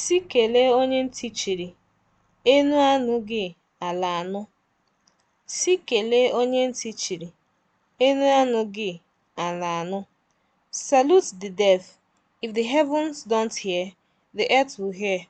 Sị kelee onye ntị chiri, enu anụghị, ala anụ. Sị kelee onye ntị chiri, enu ala anụ. Salute the deaf; if the heavens don't hear, the earth will hear.